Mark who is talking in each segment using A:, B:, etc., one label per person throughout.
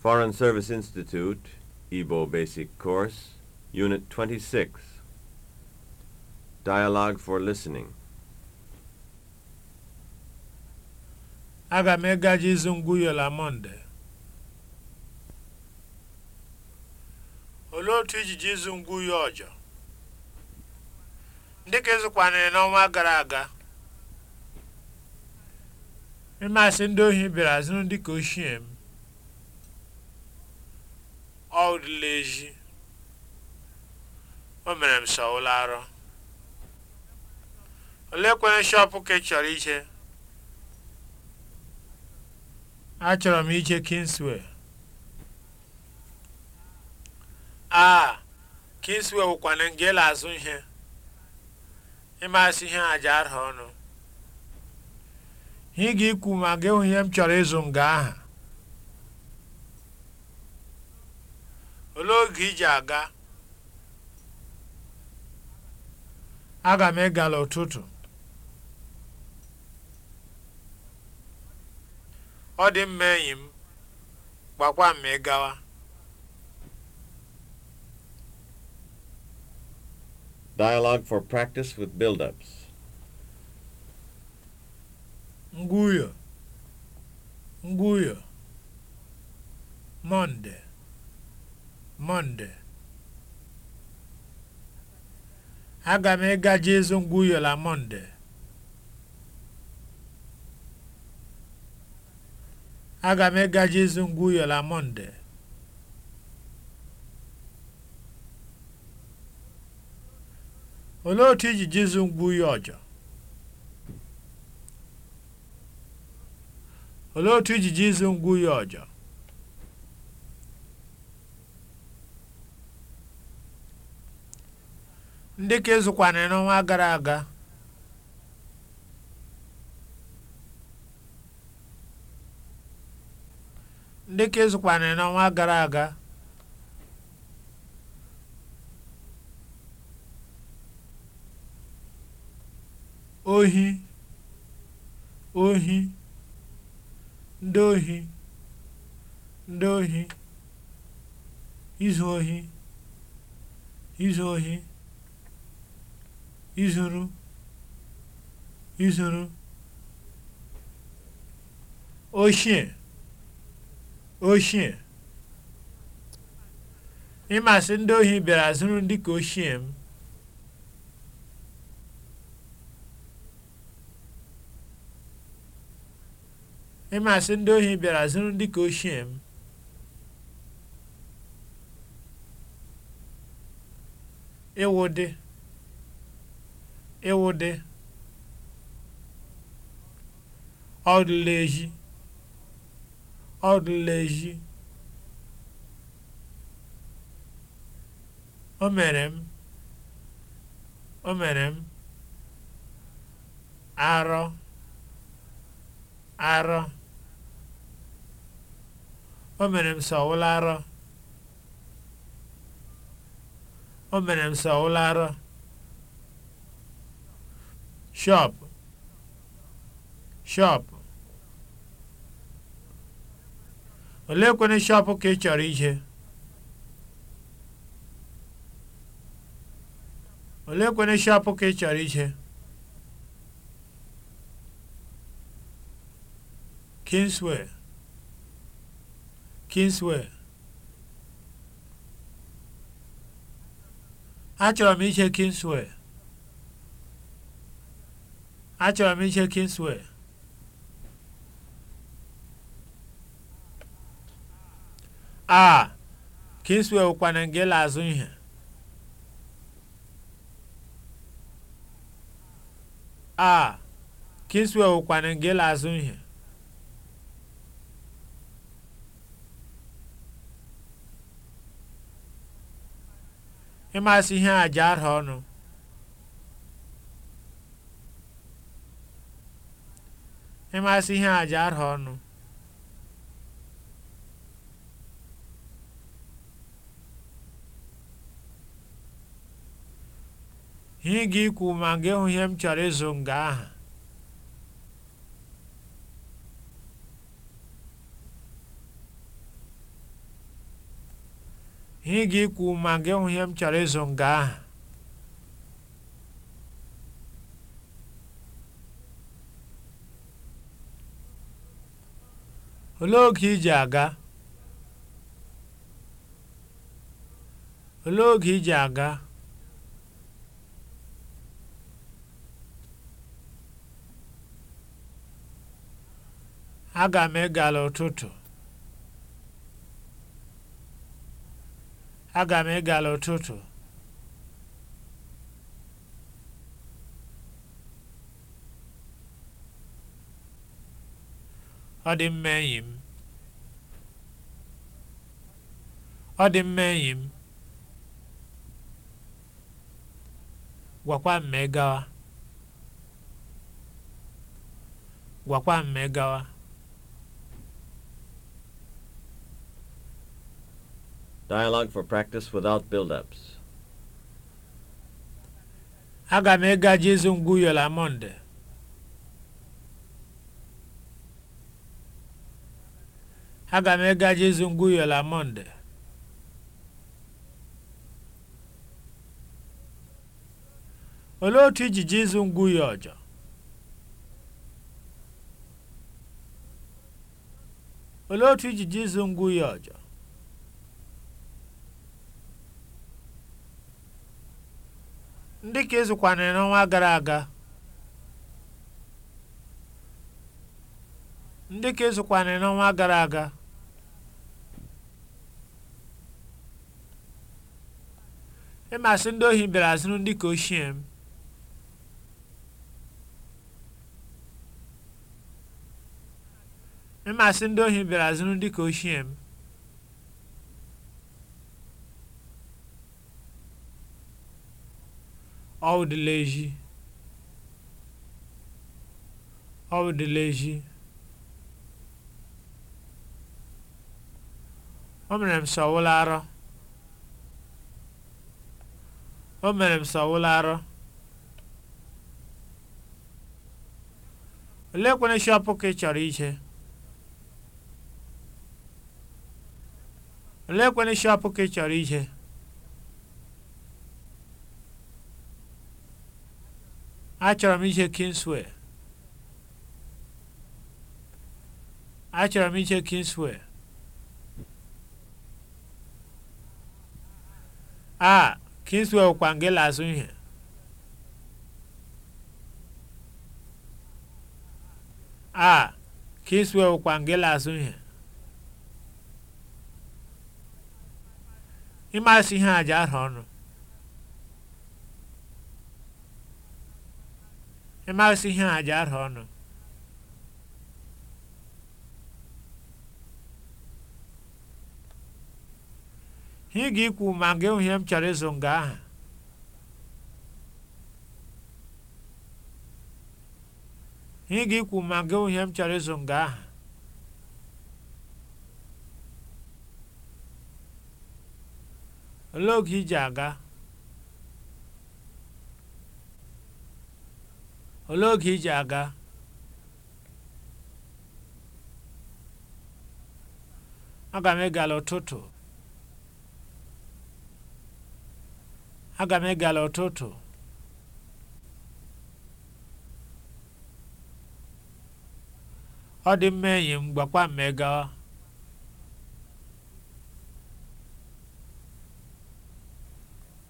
A: Foreign Service Institute, Igbo Basic Course, Unit 26. Dialogue for Listening. Aga m izu ịzụ ngwuyola Mọnde. Olee otu ijiji ịzụ ngwuyo ọjọ? Ndị ka ịzụkwanịrị n'ọnwa gara aga. Ịmasị ndị ohi bịara zụrụ ndị ka ochie m. ọ rịla ezi o mere m sọ ụlọ arọ kwee shọpụ ka ị chọrọ ije achọrọ m ije kingsway a ah, kingsway wụkwana nga ịla azụ ihe ịmasị ihe aja arha ọnụ ị ga ikwu ma ga ihe m chọrọ ịzụ nga aha olee oge iji aga aga m ịgala ụtụtụ ọ dị mma enyi m gbakwa m ịgawa Dialogue for practice with build-ups. Nguyo. Nguyo. Monday. Mọnde aga m ịgaji ịzụ ngwa Monday Mọnde aga m ịgaji ịzụ ngwa na Mọnde olee otu iji jizu ngwa uyo ọjọ olee otu iji jizu ngwa ọjọ ndị ka ezukwana n'ọnwa gara aga ndị ka n'ọnwa gara aga ohi ohi ndị ohi ndị ohi izu ohi izu ohi izuru izuru oshie ịmasị ndị ohi bịara zuru dị ka ochie m ịmasị ndị ohi bịara zuru ndị ka ochie m ịwụ dị ịwụde ọdụlezi ọdụlezi o mere m o mere m arọ arọ o mere m sọwụla arọ o mere m sọwụla arọ shop shop olee kwene shop ka ị chọrọ ije olee shop ka a achọrọ m ije Kingsway Achọrọ m iche Kingsway. A. Kingsway wụkwana nke ịla azụ ihe. A. Kingsway wụkwana nke ịla azụ ihe. Ịmasị ihe a ji ara ọnụ. ịmasị ihe àjà arha ọnụ ihe ga ikwu ma gị hụ ihe m chọrọ ịzụ nga aha ihe ga ikwu ma m chọrọ ịzụ nga aha Olee oge ị ji aga? aga? Aga m egala ụtụtụ. Aga m egala ụtụtụ. ọ dị mma enyi m ọ dị mma enyi m gwakwa m ma gawa gwakwa m gawa Dialogue for practice without build-ups. Aga m ịga Jizu ngwu yola Monde. Aga m ịga Jesu Ngwuyo na Mọnde. Olee otu iji Jesu Ngwuyo ọjọọ? Olee otu iji Jesu Ngwuyo ọjọọ? Ndị ka ịzụkwanịrị n'ọnwa gara aga. Ndị ka ịzụkwanịrị n'ọnwa gara aga. ịmasị ndị ohi bịara zụrụ ndị ka ochie m ịmasị ndị ohi bịara zụrụ ndị ka ochie m ọ dịla ọ o o mere m sọwụla arọ oleekwana shọpụ ka ị chọrọ ije oleekwana shọpụ ka ị chọrọ ije achọrọ m ije Kingsway achọrọ m ije Kingsway a ah, Kingswell e kwa nke la-azụ ihe a Kingswell e kwa ima si ihe ịmasị ihe aja ahụ ọnụ ihe ọnụ ga ikwu ma gị hụ ihe m chọrọ ịzụ nga aha higa ikwu ma gị ihe m chọrọ ịzụ nga aha olee oge iji aga olee oge iji aga aga m ịgala ụtụtụ aga m egala ụtụtụ ọ dị mma enyi m gbakwa m ịgawa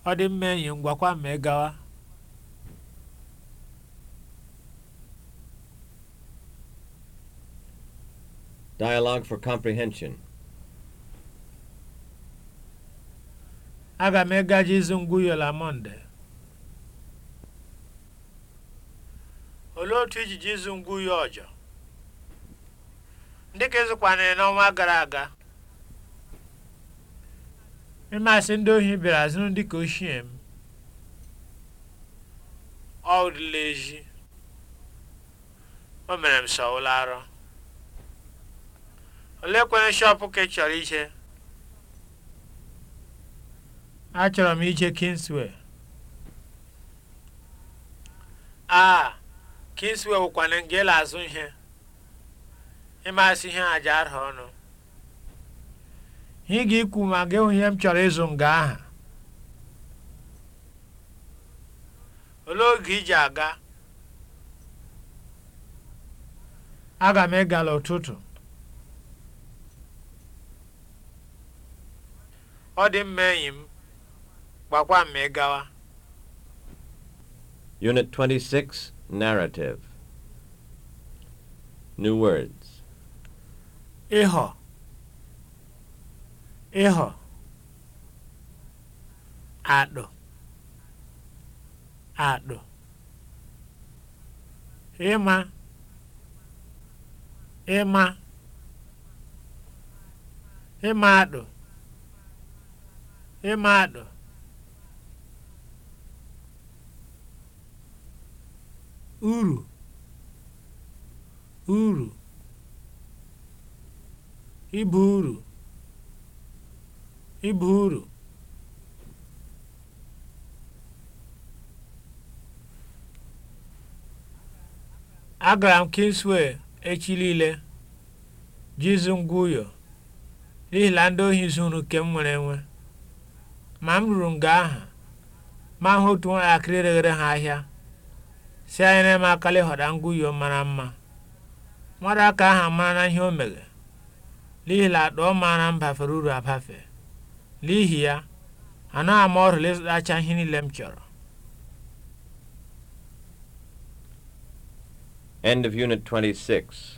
A: ọ dị mma enyi m gbakwa m ịgawa Dialogue for comprehension. Aga m ịgaje ịzụ ngwuyo na Mọnde. Olee otu ijiji ịzụ ngwuyo ọjọ? Ndị ka ịzụkwanịrị n'ọnwa gara aga. Ịmasị ndị ohi bịara zụrụ ndị ka ochie m. ọdịla ezi. O mere m sọ ụlọ arọ. Olee kwenye shọpụ ka ị chọrọ ije? Achọrọ m ije Kingsway. A Kingsway wụkwana elu azụ ihe. Ịmasị ihe aja arụ ọnụ. Ị ga-ikwu ma gị hụ m chọrọ ịzụ nga aha. Olee oge iji aga? Aga m ịgala ụtụtụ. Ọ dị mma enyi m. gbakwa mmegawa Unit 26 Narrative New words ịhọ ịhọ adụ adụ ịma ịma ịma adụ ịma adụ uru uru ịba uru ịba uru agara m Kingsway echi niile jizu ngwa ụyọ n'ihi ndị ohi zuru nke m nwere enwe ma m ruru nga aha ma hụ otu nwatakịrị reghere ha ahịa si anyị na-eme akala ịghọda ngwuyo mara mma mmadụ aka ahụ amara na ihe o mere n'ihi na akpa ọ maara m bafere uru abafe n'ihi ya anaghị ama ọrụla ịzụtacha ihe niile m chọrọ End of Unit 26